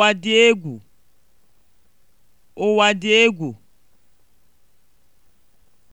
Ụwa dị egwu! Ụwa dị egwu!